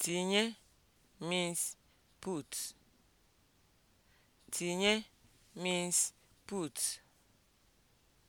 Tinye means put. Tinye means put.